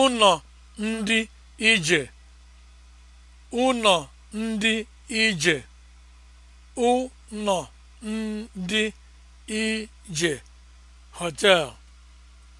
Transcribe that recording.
ụnọ ndị ije ụnọ ndị ije ụnọ ndị ije hotel